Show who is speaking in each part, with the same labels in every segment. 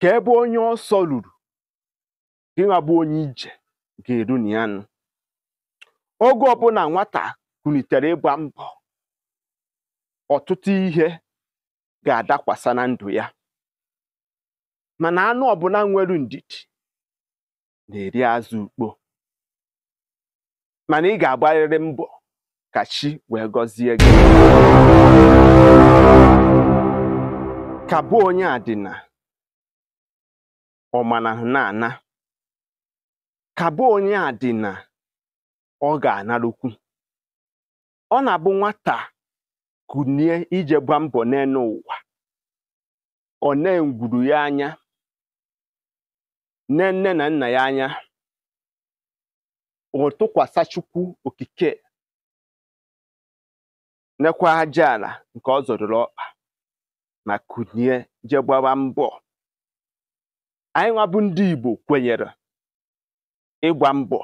Speaker 1: ka ebe onye ọsọ ruru gịnwa onye ije ga-eru na ya nụ oge ọbụla nwata kunitere ịgba mbọ ọtụtụ ihe ga-adakwasa na ndụ ya mana anụ ọbụla nwere ndidi na-eri azụ ukpo mana ị ga-agbarịrị mbọ ka chi wee gọzie gị ka bụ onye adịna ọmana na-ana ka onye a dị na ọ ga-analụkwu ọ na-abụ nwata kunie ije gba mbọ n'elu ụwa ọ na egwuru ya anya nne nne na nna ya anya ọ Chukwu okike nekwa aja ala nke ọ zọdụrụ ọkpa ma kunie jegbawa mbọ anyị nwa bụ ndị Igbo kwenyere ịgba mbọ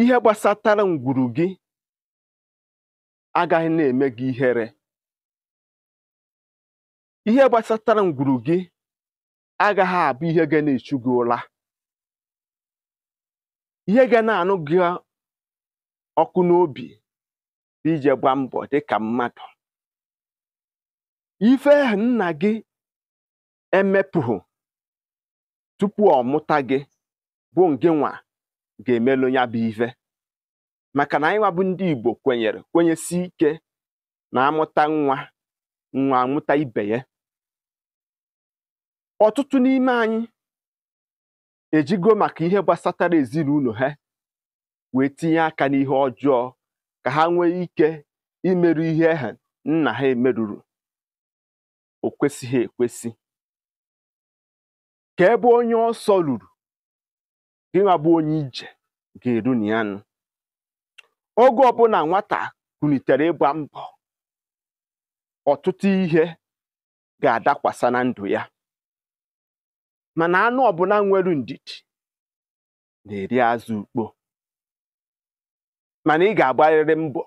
Speaker 1: ihe gbasatara ngwuru gị agaghị na-eme gị ihere ihe gbasatara ngwuru gị agaghị abụ ihe ga na-echu gị ụra ihe ga na-anụ gị ọkụ n'obi ije gba mbọ ka mmadụ ife nna gị emepụhụ tupu ọ mụta gị bụ ngịnwa ga-emelụ ya bụ ihe, maka na anyị nwabụ ndị Igbo kwenyere kwenyesi ike na amụta nwa nwa amụta ibe ya ọtụtụ n'ime anyị ejigo maka ihe gbasatara ezinụlọ ha wee tinye aka n'ihe ọjọọ ka ha nwee ike imerụ ihe ha nna ha emerụrụ o kwesịghị ekwesị ka ebe onye ọsọ ruru gị bụ onye ije ga-eru na ya nụ oge ọbụla nwata kunitere ịgba mbọ ọtụtụ ihe ga-adakwasa na ndụ ya mana anụ ọbụla nwere ndidi na-eri azụ ukpo mana ị ga-agbarịrị mbọ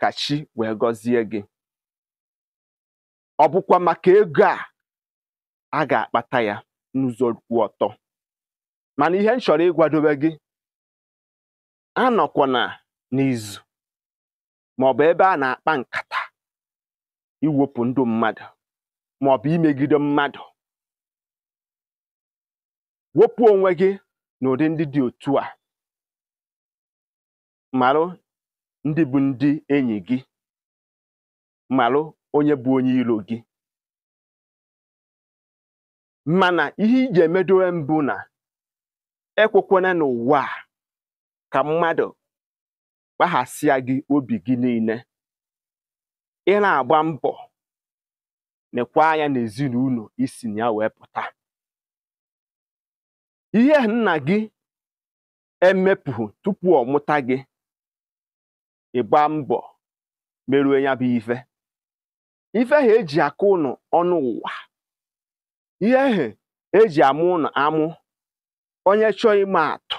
Speaker 1: ka chi wee gọzie gị ọ bụkwa maka ego a a ga-akpata ya n'ụzọ kwụ ọtọ mana ihe m chọrọ ịgwadobe gị anọkwana n'izu maọbụ ebe a na-akpa nkata iwepụ ndụ mmadụ maọbụ imegide mmadụ wopu onwe gị n'ụdị ndị dị otu a marụ ndị bụ ndị enyi gị marụ onye bụ onye iro gị mana ihe iji emedowe mbụ na ekwekwana n'ụwa a ka mmadụ kpaghasịa gị obi gị niile ị na-agba mbọ na ekwe anya n'ezinụlọ isi na ya wee pụta ihe nna gị emepụghị tupu ọ mụta gị ịgba mbọ merue ya bụ ife ife ha eji akụ ụnụ ọnụ ụwa ihe ehe eji amụ amụ onye chọọ ime atụ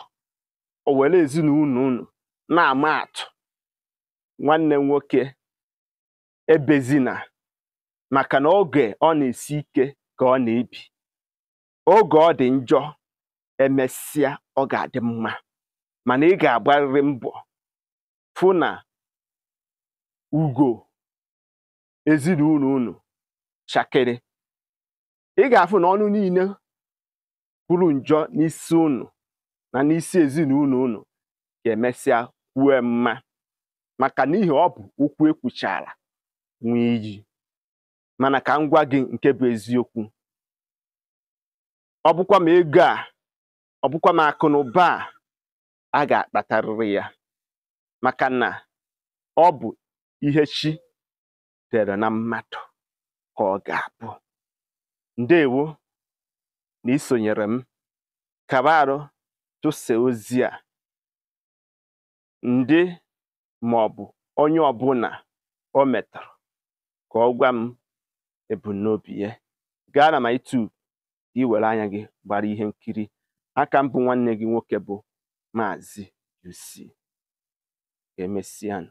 Speaker 1: o were ezinụlọ unu na-ama atụ nwanne m nwoke ebezina maka na oge ọ na-esi ike ka ọ na-ebi oge ọ dị njọ emesịa ọ ga-adị mma mana ị ga-agbarịrị mbọ fụ na ugo ezinụlọ unu chakịrị ị ga-afụ na ọnụ niile kwuru njọ n'isi unu na n'isi ezinụlọ unu ga-emesịa kwue mma maka n'ihi ọ bụ ụkwụ ekwuchara nwee iyi mana ka m gwa gị nke bụ eziokwu ọ bụkwa m ego a ọ bụkwa m akụ na ụba a a ga-akpatarịrị ya maka na ọ bụ ihe chi dere na mmadụ ka ọ ga-abụ ndewo na isonyere m kàba arụ ozi a ndị maọbụ onye ọbụla o metọrọ ka ọ gwa m ebumnobi ya gaa na ma YouTube gị were anya gị gbara ihe nkiri aka mbụ nwanne gị nwoke bụ Maazị UC emesian